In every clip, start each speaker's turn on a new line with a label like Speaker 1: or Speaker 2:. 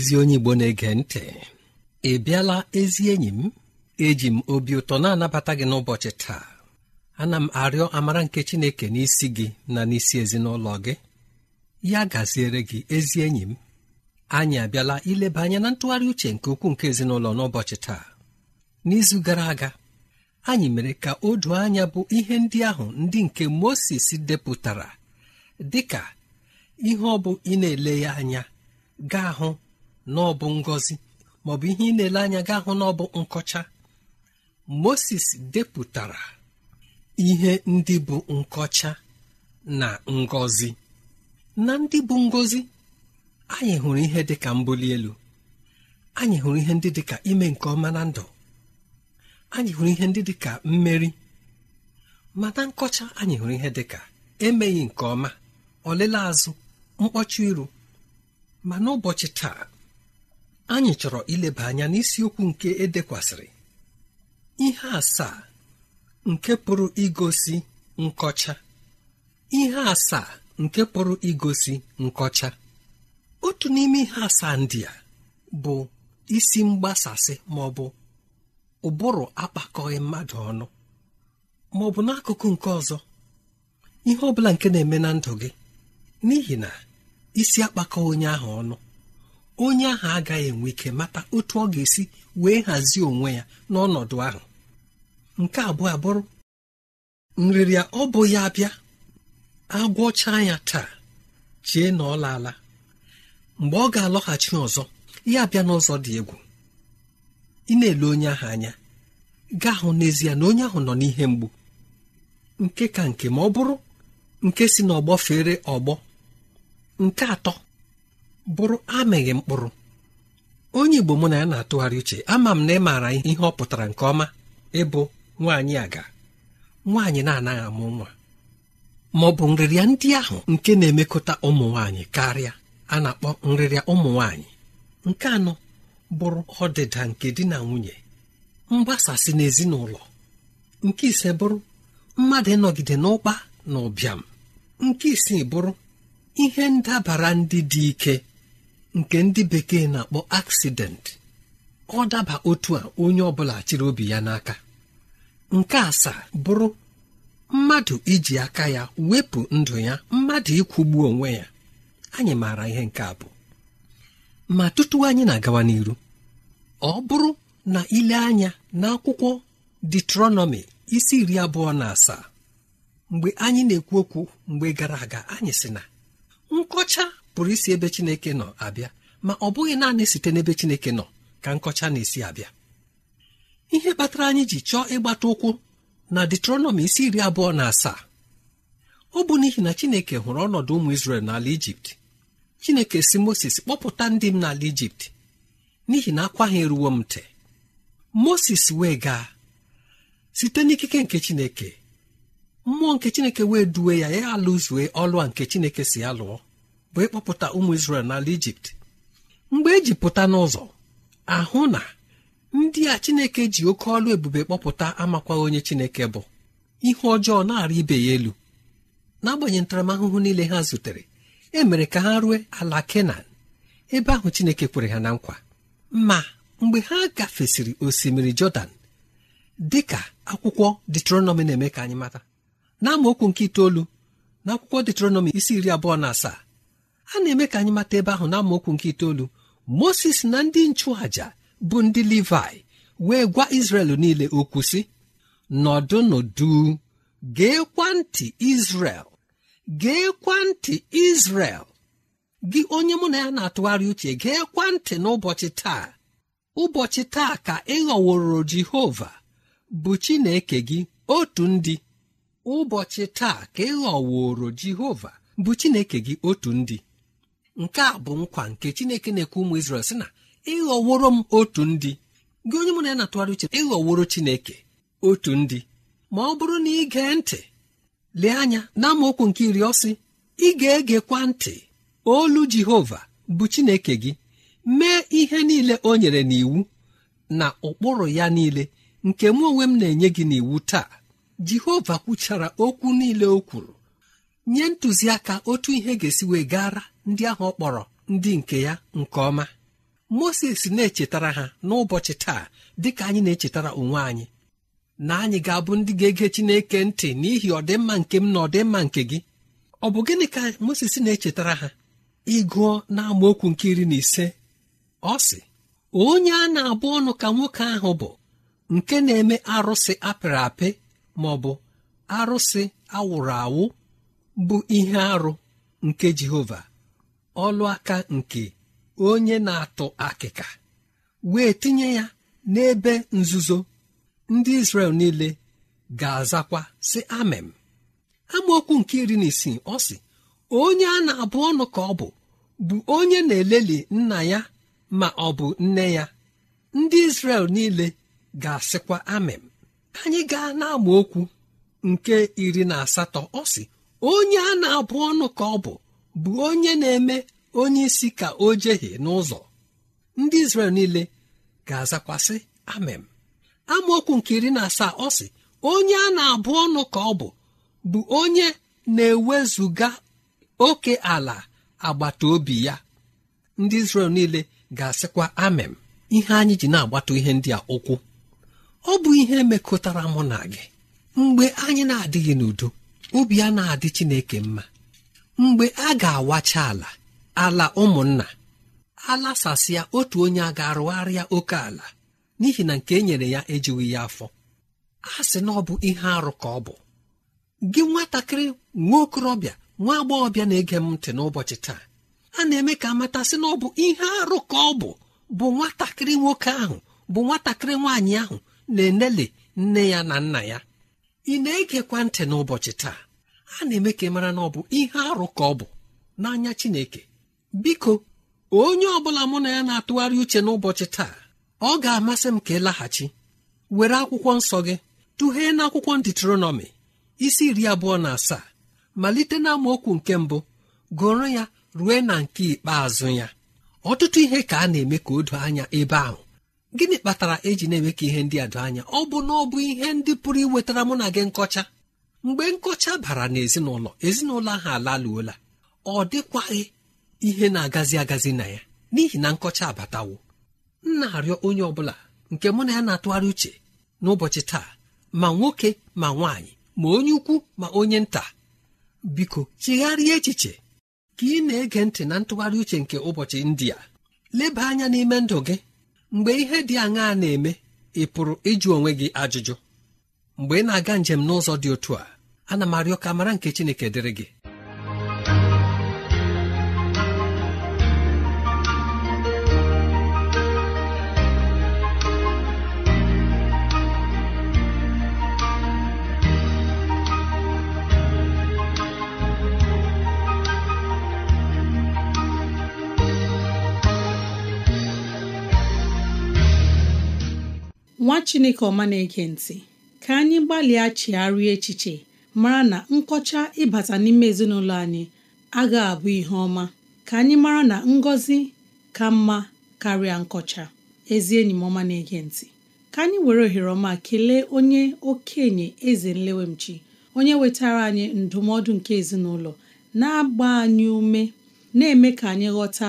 Speaker 1: ezi onye Igbo na-ege ntị ị bịala ezi enyi m eji m obi ụtọ na-anabata gị n'ụbọchị taa ana m arịọ amara nke Chineke n'isi gị na n'isi ezinụlọ gị ya gaziere gị ezi enyi m anyị abịala ileba anya na ntụgharị uche nke ukwuu nke ezinụlọ n'ụbọchị taa n'izu gara aga anyị mere ka o anya bụ ihe ndị ahụ ndị nke Mosis depụtara dịka ihe ọ bụ ị na-ele ya anya gaa hụ na ọ bụ maọbụ ihe ị na-ele anya ga hụ na ọ bụ nkọcha moses depụtara ihe ndị bụ nkọcha na ngozi. na ndị bụ ngozi, anyị hụrụ ihe dị ka mbuli elu anyị hụrụ ihe ndị dị ka ime nke ọma na ndụ anyị hụrụ ihe ndị dị ka mmeri ma na nkọcha anyị hụrụ ihe dị ka emeghị nke ọma ọlele azụ mkpọcha iru ma n'ụbọchị taa anyị chọrọ ileba anya n'isiokwu nke edekwasịrị ihe asaa nke pụrụ igosi nkọcha ihe asaa nke pụrụ igosi nkọcha otu n'ime ihe asaa ndị a bụ isi mgbasasị ma ọ bụ ụbụrụ akpakọghị mmadụ ọnụ ma ọ bụ n'akụkụ nke ọzọ ihe ọbụla nke na-eme na ndụ gị n'ihi na isi akpakọ onye ahụ ọnụ onye ahụ agaghị enwe ike mata otu ọ ga-esi wee hazie onwe ya n'ọnọdụ ahụ nke abụọ abụrụ nrịrịa ọ bụ ya abịa agwọcha ya taa chie na ọ laala mgbe ọ ga-alọghachi ọzọ ya abịa n'ụzọ dị egwu ị na-ele onye ahụ anya gaa hụ n'ezie na onye ahụ nọ n'ihe mgbu nke ka nke ma ọ bụrụ nke si n'ọgbọ fere ọgbọ nke atọ bụrụ amịghị mkpụrụ onye Igbo mụ na ya na-atụgharị uche ama m na ị maara ihe ọ pụtara nke ọma ịbụ nwaanyị aga nwaanyị na-anaghị amụ nwa ma ọ bụ nrịrịa ndị ahụ nke na-emekọta ụmụ nwaanyị karịa a na-akpọ nrịrịa ụmụ nwaanyị nke anọ bụrụ ọdịda nke di na nwunye mgbasasị n'ezinụlọ nke ise bụrụ mmadụ ịnọgide n'ụkpa na ụbịam nke isii bụrụ ihe ndabara ndị dị ike nke ndị bekee na-akpọ aksidentị ọ daba otu a onye ọbụla chịrị obi ya n'aka nke asaa bụrụ mmadụ iji aka ya wepụ ndụ ya mmadụ ịkwụgbu onwe ya anyị maara ihe nke abụọ. ma tutu anyị na-agawa n'iru ọ bụrụ na ile anya n'akwụkwọ detronomi isi iri abụọ na asaa mgbe anyị na-ekwu okwu mgbe gara aga anyị sị na nkọcha pụrụ isi ebe chineke nọ abịa ma ọ bụghị naanị site n'ebe chineke nọ ka nkọcha na-esi abịa ihe kpatara anyị ji chọọ ịgbata ụkwụ na detronomi isi iri abụọ na asaa ọ bụ n'ihi na chineke hụrụ ọnọdụ ụmụ isrel n'ala ijipt chineke si moses kpọpụta ndị m n'ala ijipt n'ihi na akwa ha eruwo m ntị moses wee gaa site n'ikike nke chineke mmụọ nke chineke wee duwe ya ya alụzue ọlụ a nke chineke si ya lụọ bụ ịkpọpụta ụmụ Izrel n'ala Ijipt mgbe eji pụta n'ụzọ ahụ na ndị a Chineke ji oke ọlụ ebube kpọpụta amakwa onye Chineke bụ ihe ọjọọ na-arị ibe ya elu n'agbanyeghị ntaramahụhụ niile ha zutere e mere ka ha rue ala Kenan ebe ahụ Chineke kwere ha na nkwa ma mgbe ha gafesịrị osimiri Jọdan dị ka akwụkwọ detronọmi na-eme ka anyị mata n'amaokwu nke itoolu na akwụkwọ detronọmi isi iri abụọ na asaa a na-eme ka anyị mata ebe ahụ na amaokwu nke itoolu moses na ndị nchụàja bụ ndị levi wee gwa izrel niile okwu sị nọdụnụdu geekwa ntị izrel geekwa ntị izrel gị onye mụ na ya na-atụgharị uche geekwa ntị n'ụbọchị taa ụbọchị taa ka ị jehova bụ chineke gị otu ndị ụbọchị taa ka ị jehova bụ chineke gị otu ndị nke a bụ nkwa nke chineke na-ekwe ụmụ Izrel sị na ịghọworo m otu ndị gị onye mụ na ya na-atụgharị uche ịghọworo chineke otu ndị ma ọ bụrụ na ị gee ntị lee anya na amaokwu nke iri ọsị ị ga-egekwa ntị olu Jehova bụ chineke gị mee ihe niile o nyere n'iwu na ụkpụrụ ya niile nke mụ onwe m na-enye gị n'iwu taa Jehova kwuchara okwu niile o kwuru nye ntụziaka otu ihe ga-esi wee gara ndị ahụ ọ kpọrọ ndị nke ya nke ọma moses na-echetara ha n'ụbọchị taa dịka anyị na-echetara onwe anyị na anyị ga-abụ ndị ga-ege Chineke ntị n'ihi ọdịmma nke m na ọdịmma nke gị ọ bụ gịnị ka Moses na-echetara ha ịgụọ n'amaokwu nke iri na ise ọ sị onye a na-abụ ọnụ ka nwoke ahụ bụ nke na-eme arụsị apịrị apị ma ọ bụ arụsị awụrụ awụ bụ ihe arụ nke Jehova ọlụ aka nke onye na-atụ akịka wee tinye ya n'ebe nzuzo ndị Izrel niile ga-azakwa sị amem amaokwu nke iri na isii ọ sị onye a na-abụ ọnụ ka ọ bụ bụ onye na-eleli nna ya ma ọ bụ nne ya ndị Izrel niile ga-asịkwa amem anyị gaa na nke iri na asatọ ọ sị onye a na-abụ ọnụ ka ọ bụ bụ onye na-eme onye isi ka o jehie n'ụzọ ndị Izrel niile ga-azakwasị amem amaokwu nke iri na asaa ọ sị onye a na-abụ ọnụ ka ọ bụ bụ onye na-ewezuga oke ala agbata obi ya ndị Izrel niile ga-asịkwa amem ihe anyị ji na-agbata ihe ndị a ụkwụ ọ bụ ihe mekọtara mụ na gị mgbe anyị na-adịghị n'udo obi ya na-adị Chineke mma mgbe a ga-awacha ala ala ụmụnna alasasịa otu onye a ga-arụgharịa oke ala n'ihi na nke e nyere ya ejighị ya afọ a sị na ọ bụ ihe arụ ka ọ bụ gị nwatakịrị nwa okorobịa nwa agbọghọbịa na-ege m ntị n'ụbọchị taa a na-eme ka amata sị na ọ bụ ihe arụ ka ọ bụ bụ nwatakịrị nwoke ahụ bụ nwatakịrị nwaanyị ahụ na-enele nne ya na nna ya ị na-egekwa ntị n'ụbọchị taa A na-eme ka ị e mara na ọ bụ ihe arụ ka ọ bụ n'anya Chineke biko onye ọ bụla mụ na ya na-atụgharị uche n'ụbọchị taa ọ ga-amasị m ka ị laghachi were akwụkwọ nsọ gị tụghee na akwụkwọ Diuteronomi isi iri abụọ na asaa malite na nke mbụ gụrụ ya rue na nke ikpeazụ ya ọtụtụ ihe ka a na-eme ka o doo anya ebe ahụ gịnị kpatara eji na-eme ka ihe ndị a doo anya ọ bụ na ọ bụ ihe ndị pụrụ iwetara mụ na gị nkọcha mgbe nkọcha bara n'ezinụlọ ezinụlọ ahụ alaluola ọ dịkwaghị ihe na-agazi agazi na ya n'ihi na nkọcha abatawo m na-arịọ onye ọbụla nke mụ na ya na-atụgharị uche n'ụbọchị taa ma nwoke ma nwaanyị ma onye ukwu ma onye nta biko chigharịa echiche ka ị na-ege ntị na ntụgharị uche nke ụbọchị ndị leba anya n'ime ndụ gị mgbe ihe dị aṅaa na-eme ị pụrụ ịjụ onwe gị ajụjụ mgbe ị na-aga njem n'ụzọ dị otu a ana m arịọ ka mara nke Chineke dịrị gị
Speaker 2: nwa chineke ọma na-ege ntị ka anyị gbalịa chigharịa echiche mara na nkọcha ịbata n'ime ezinụlọ anyị agaghị abụ ihe ọma ka anyị mara na ngọzi ka mma karịa nkọcha ezi enyi m ọma na-ege ntị ka anyị were ohere ọma kelee onye okenye eze nlewemchi onye wetara anyị ndụmọdụ nke ezinụlọ na-agba anyị ume na-eme ka anyị ghọta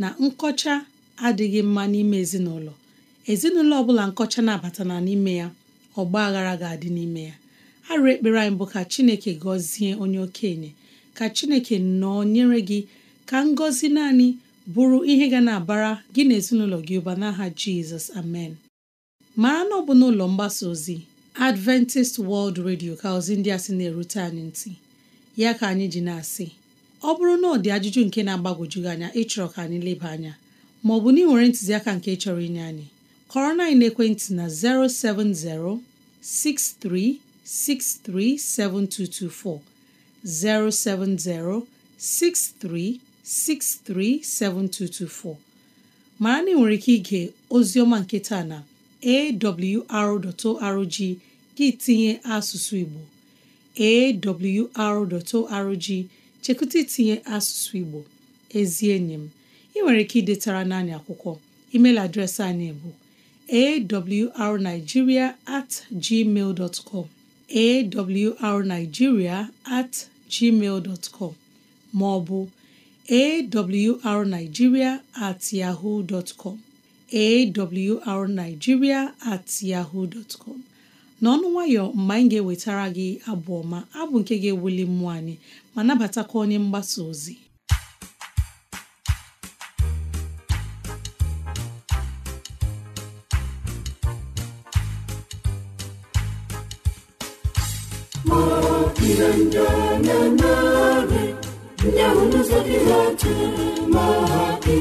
Speaker 2: na nkọcha adịghị mma n'ime ezinụlọ ezinụlọ ọ bụla nkọcha na-abata na n'ime ya ọgba aghara ga-adị n'ime ya arụ ekpere anyị bụ ka chineke gọzie onye okenye ka chineke nọọ nyere gị ka ngọzi naanị bụrụ ihe ga na-abara gị na ezinụlọ gị ụba n'aha jizọs amen mara na ọ bụ n'ụlọ mgbasa ozi adventist world radio ka ozi ndị a sị na-erute anyị ntị ya ka anyị ji na-asị ọ bụrụ na ọ dị ajụjụ nke na-agbagwoju gị anya ịchọrọ ka anyị leba anya maọbụ na ị nwere ntụziaka nke chọrọ inye anyị kọrọ na ekwentị na 070 6363 7224 070 6363 7224 mara na ị nwere ike ige oziọma nke taa na awr.org gị tinye asụsụ Igbo awr.org chekwute itinye asụsụ Igbo ezi enyi m ị nwere ike idetara naanị akwụkwọ email adreesị anyị bụ awrnigeria at gmail com awrnigeria at gmail com ma ọ bụ awrnigeria at yahoo dot com awrnigeria at yahoo dot com n'ọnụ nwayọ mgbe anyị ga-ewetara gị abụ ọma abụ nke ga-ewuli mmụọ anyị ma nabatakwa onye mgbasa ozi
Speaker 3: ndananarị ndị ahụ n'ụzọ gị ha chere ma ha ndị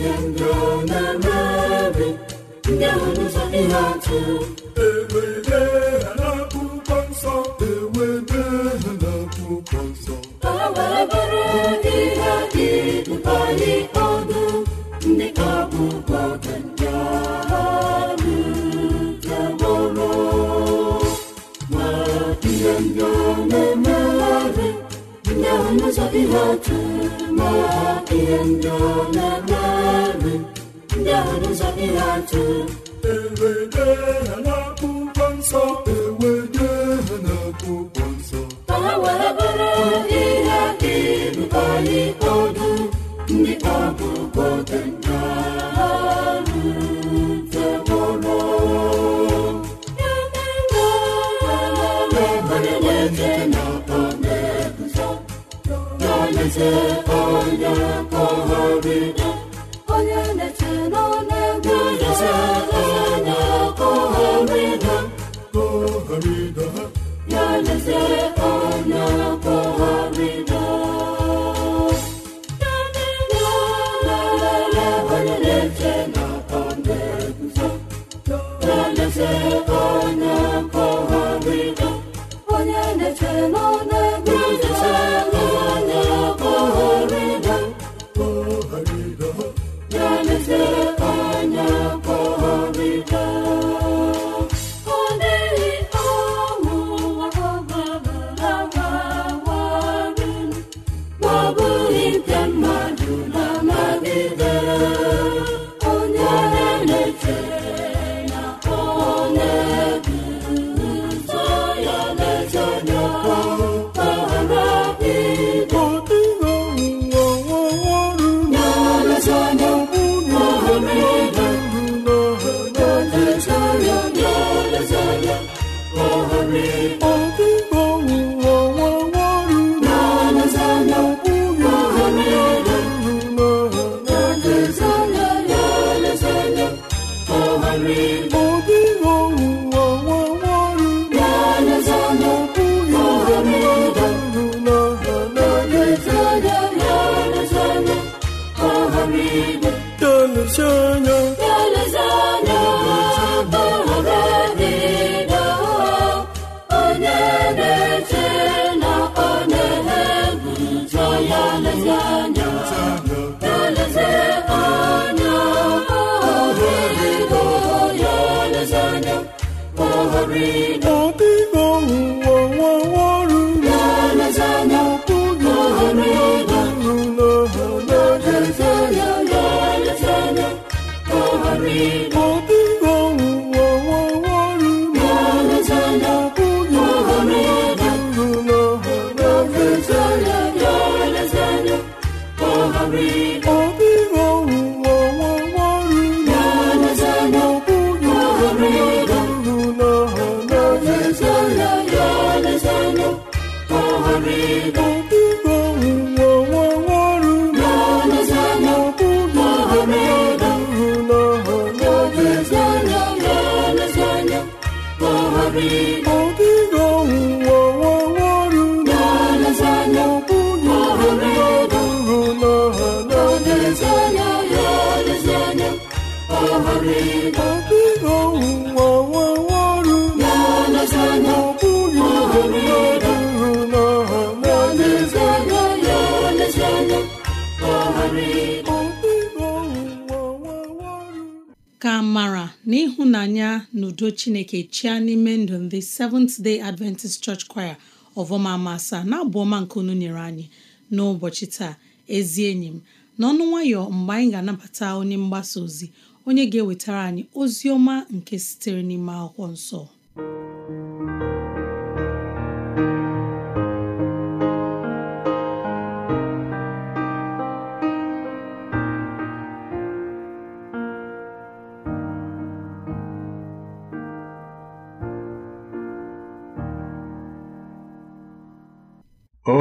Speaker 3: ihe njọ na-eme ndị ahụ n'ụzọ ihe atụ eze onye kpọhọride onye na-eche n'ọnụego eze onye kpọhọride kpọhọride ya na free. ka
Speaker 2: mara na ịhụnanya na udo chineke chia n'ime ndụ ndị Seventh Day Adventist Church Choir ọvọma asaa na abụọma ọma nke unu nyere anyị n'ụbọchị taa ezi enyi m n'ọnụ nwayọ mgbe anyị ga-anabata onye mgbasa ozi onye ga-ewetara anyị ozi ọma nke sitere n'ime akwụkwọ nsọ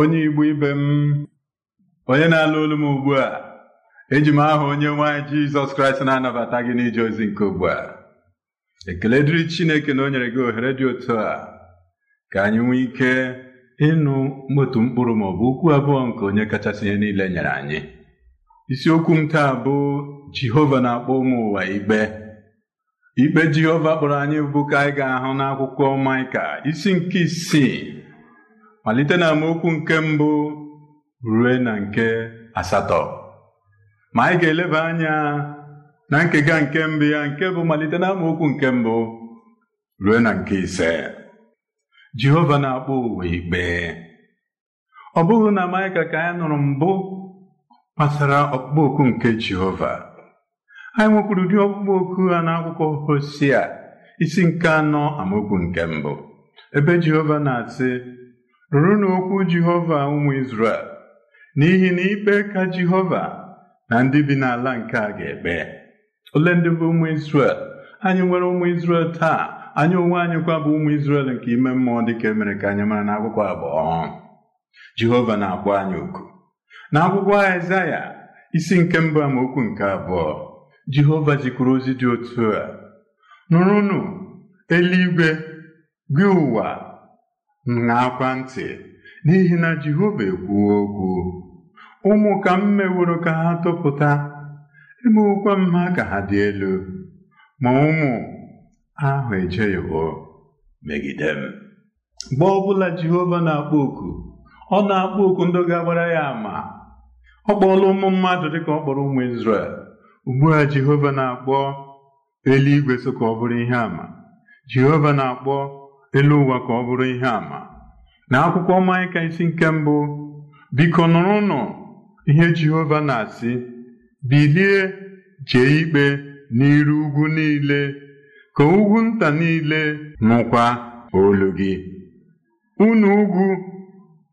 Speaker 4: onye Igbo ibe m onye na-alụ olu m ugbu a eji m aha onye nwanyị jizọs kraịst na-anabata gị n'ije ozi nke ugbu a ekele dịrị chineke na o nyere gị ohere dị otu a ka anyị nwee ike ịnụ otu mkpụrụ ma ọ bụ okwu abụọ nke onye kachasị ihe niile nyere anyị isiokwu m taa bụ jehova na-akpọ ụmụ ụwa ikpe ikpe jehova kpọrọ anyị bụ ka anyị ga-ahụ n'akwụkwọ maịka isi nke isii malite na amaokwu nke mbụ rue na nke asatọ ma anyị ga-eleba anya na nkega nke mbụ ya nke bụ malite na amaokwu nke mbụ ruo na nke ise Jehova na-akpọ ụwa ikpe ọ bụghị na Maịka ka anyị nụrụ mbụ kpasara ọkpụkpọ oku nke Jehova anyị nwekwuru ụdị ọkpụkpọ oku ha n'akwụkwọ Hosea isi nke anọ amaokwu nke mbụ ebe Jehova na-asị rụrụ n'okwu Jehova ụmụ Izrel n'ihi na ikpe ka Jehova na ndị bi n'ala nke a ga-ekpe ole ndị bụ ụmụ Izrel anyị nwere ụmụ Izrel taa anyị onwe anyị kwa bụ ụmụ Izrel nke ime mmụọ dịka emere ka anyị mara n'akwụkwọ abụọ Jehova na-akpọ anyị oku na akwụkwọ Aịzaya isi nke mbụ amaokwu nke abụọ Jehova jikwuru ozi dị otu a nụrụnụ eluigwe gị ụwa na-akwa ntị n'ihi na Jehova ekwuo okwu ụmụ ka m meworo ka ha topụta emewokwa m ha ka ha dị elu ma ụmụ ahụ ejeghịwo megide m mgbe ọbụla Jehova na-akpọ oku ọ na-akpọ oku ndị ga-agbara ya ama ọ kpọọla ụmụ mmadụ dịka ọ kpọrọ ụmụ Izrel ugbu a Jehova na-akpọ eluigwe so ka ọ bụrụ ihe àmà Jehova na-akpọ elu ụwa ka ọ bụrụ ihe àmà na akwụkwọ ka isi nke mbụ biko nụ. ihe Jehova na-asị bilie jee ikpe n'iru ugwu niile ka ugwu nta niile nụkwa olu gị unu ugwu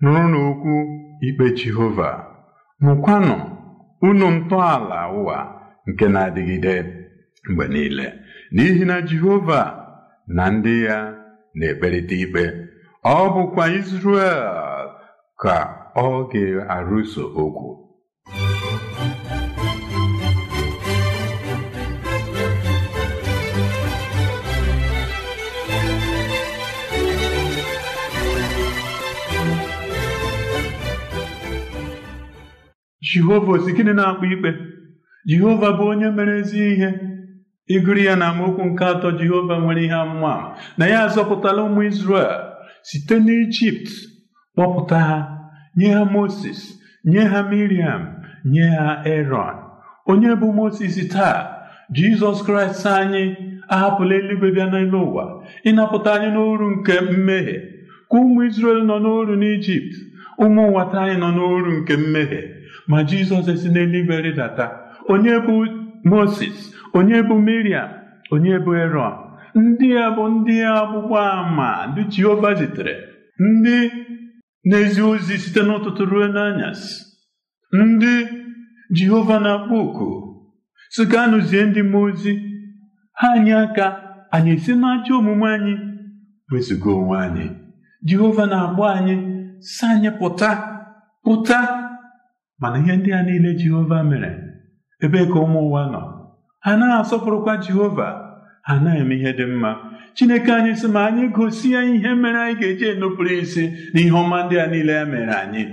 Speaker 4: nụrụ n'okwu ikpe Jehova nụkwanụ unu ntọala ụwa nke na-adịgide mgbe niile n'ihi na Jehova na ndị ya na-ekperịta ikpe ọ bụkwa Izrel ka ọ ga-arụso okwu jehova osi gịnị na akpụ ikpe jehova bụ onye mere ezi ihe ịgụrụ ya na amaokwu nke atọ jehova nwere ihe amụma na ya azọpụtala ụmụ Izrel site n'ijipt kpọpụta ha nye ha moses nye ha miriam nye ha eron onye bụ moses taa jizọs kraịst anyị ahapụla eluigwe bịa n'elu ụwa ịnapụta anyị n'oru nke mmehie ka ụmụ Izrel nọ n'oru n'ijipt ụmụ nwata anyị nọ n'oru nke mmehie ma jizọs esi n'eluigwe rịdata onye bụ moses onye bụ miriam onye bụ eron ndị a bụ ndị agbụgba ama ndị jehova zitere ndị n'ezi ozi site n'ụtụtụ ruo n'anyasị ndị jehova na-akpọ oku si anụzie ndị mmụọ ozi ha anyị aka anyị esi n'ajọ omume anyị wezụga onwe anyị jehova na-agba anyị si anyị pụta pụta mana ihe ndị a niile jehova mere ebe ka ụmụ ụwa nọ ha na asọpụrụkwa jehova A naghị eme ihe dị mma chineke anyị sị ma anyị gosi ya ihe mere anyị ga-eji enupụrụ isi na ihe ọma ndị a niile ya e mere anyị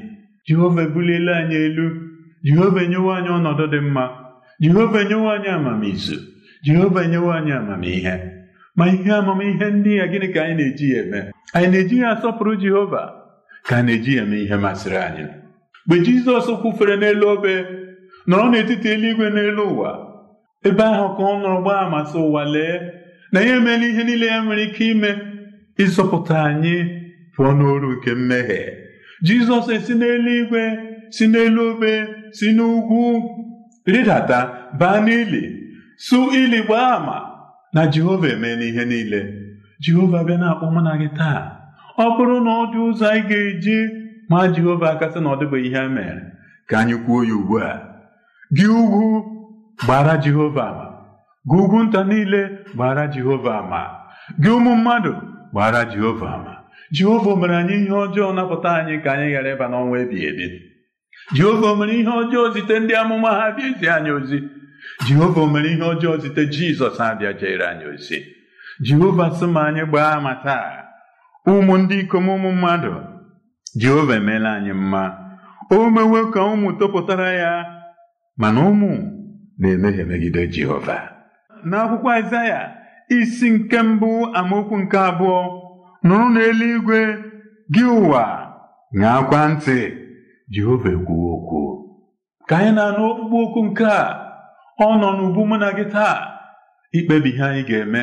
Speaker 4: jehova ebuliela anyị elu jehova enyewo anyị ọnọdụ dị mma jehova enyewo anyị amamizu jehova enyewo anyị amamihe ma ihe amamihe ndị ya gịnị ka anyị na-eji ya eme anyị na-eji ya asọpụrụ jehova ka a na-eji ya eme ihe masịrị anyị mgbe jizọs kwufere n'elu obe nọrọ n'etiti eluigwe n'elu ụwa ebe ahụ ka ọ nọrọ gbaa amasị ụwa lee na ya emeela ihe niile ya nwere ike ime ịzọpụta anyị pụọ n'oru nke mmehie jizọs esi n'eluigwe si n'elu obe si n'ugwu rịdata baa n'ili su ili gbaa ama na jehova emeela ihe niile jehova bịa na-akpọ mụ na gị taa ọ bụrụ na ọ dị ụzọ anyị ga-eji ma jehova akasị na ọ dịbụghị ihe a mere ka anyị kwuo ya ugbu a gị ugwu gbara Jehova ama gị ugwu nta niile gbara Jehova ama gị ụmụ mmadụ gbara Jehova ama Jehova mere anyị ihe ọjọọ napụta anyị ka anyị ghara ịba n'ọnwa ebighị ebi Jehova mere ihe ọjọọ zite ndị amụma ha bịa izi anyị ozi Jehova mere ihe ọjọọ zite Jizọs abịa jere anyị ozi Jehova sị ma anyị gbaa ama taa ụmụ ndị ikom ụmụ mmadụ Jehova emeela anyị mma o mewe ka ụmụ tọpụtara ya mana ụmụ na-emehie megide Jehova n'akwụkwọ Aịzaya isi nke mbụ amaokwu nke abụọ nụrụ n'eluigwe gị ụwa akwa ntị Jehova ekwuwo okwu ka anyị na-anụ okpukpe okwu nke a ọ nọ n'ubu mụ na gị taa ikpebi ihe anyị ga-eme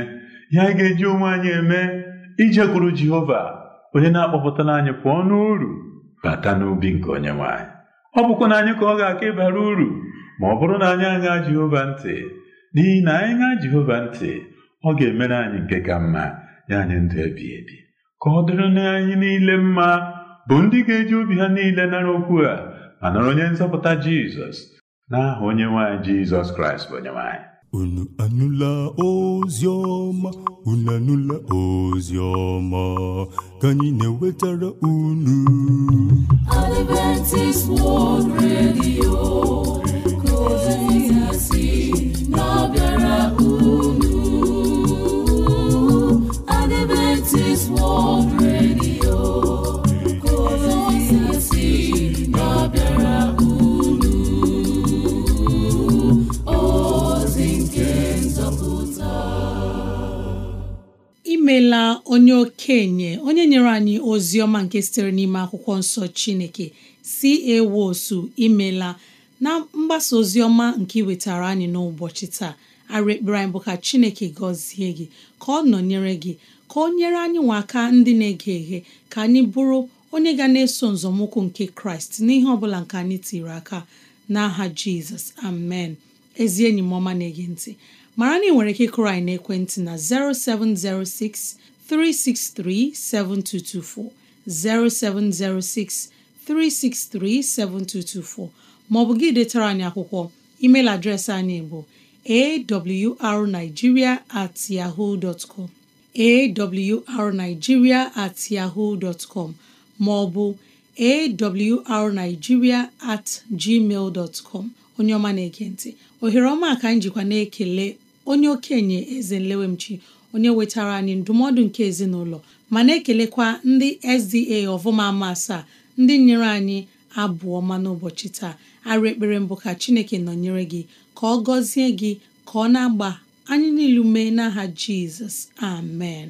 Speaker 4: ihe anyị ga-eji onwe anyị eme ijekwuru Jehova onye na-akpọpụtara anyị pụọ n'uru bata n'ubi nke onye nwanyị. ọ bụkwa na anyị ka ọ ga-aka ịbara uru ma ọ bụrụ na anyị aṅaa Jehova ntị n'ihi na anyị ṅaa Jehova ntị ọ ga-emere anyị nke ka mma ya anyị ndụ ebi ebi ka ọ dịrị na anyị niile mma bụ ndị ga-eji obi ha niile nara okwu a ma nara onye nzọpụta Jizọs n'aha onye nwaanyị Jizọs Kraịst bụ onye nwaanyị unu anụla ozi ọma unu anụla ozi ọma ka anyị na-ewetara unu Adventist
Speaker 3: World Radio
Speaker 2: imeela onye okenye onye nyere anyị ozi ọma nke sitere n'ime akwụkwọ nsọ chineke si ewosu imela na mgbasa ozi ọma nke iwetara anyị n'ụbọchị taa arụ ekpere anyị bụ ka chineke gọzie gị ka ọ nọnyere gị ka ọ nyere anyị nwa aka ndị na-ege eghe ka anyị bụrụ onye ga na-eso nzọmụkwụ nke kraịst n'ihe ọ bụla nke anyị tiri aka n'aha jizọs amen ezi enyi m ọma na-ege ntị mara na ị nwere ike kụrụ anyị n'ekwentị na 0706 363 7224 0706 363 7224 Ma ọ bụ gị detara anyị akwụkwọ email adreesị anyị bụ awrnigeria at yahoo dot com awrnigeria at yahoo dot com maọbụ awrnigeria at gmail dot com onye ọma na-ekentị ohere ọma ka anyị na-ekele onye okenye eze nlewemchi onye wetara anyị ndụmọdụ nke ezinụlọ ma na-ekelekwa ndị SDA ọvụma ama asaa ndị nyere anyị abụọ ọma n'ụbọchị taa arụ ekpere mbụ ka Chineke nọnyere gị ka ọ gọzie gị ka ọ na-agba anyị niile ume n'aha Jizọs amen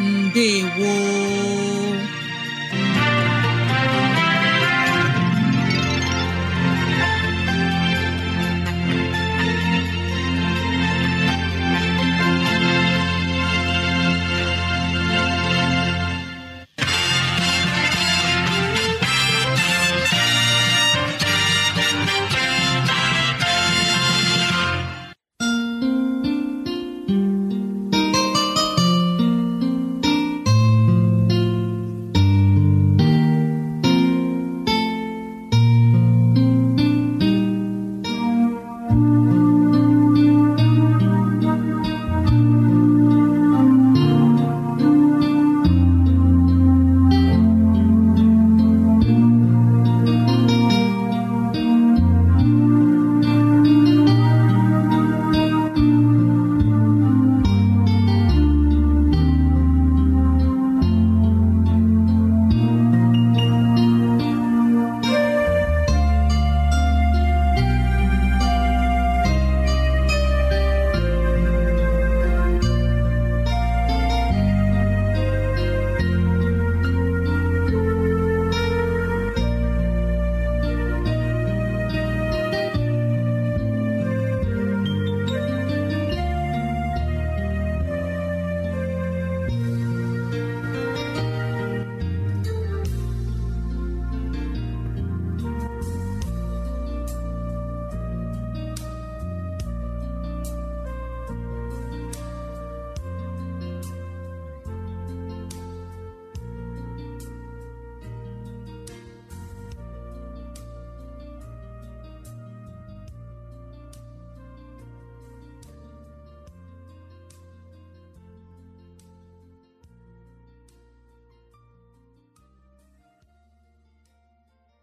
Speaker 2: ndewo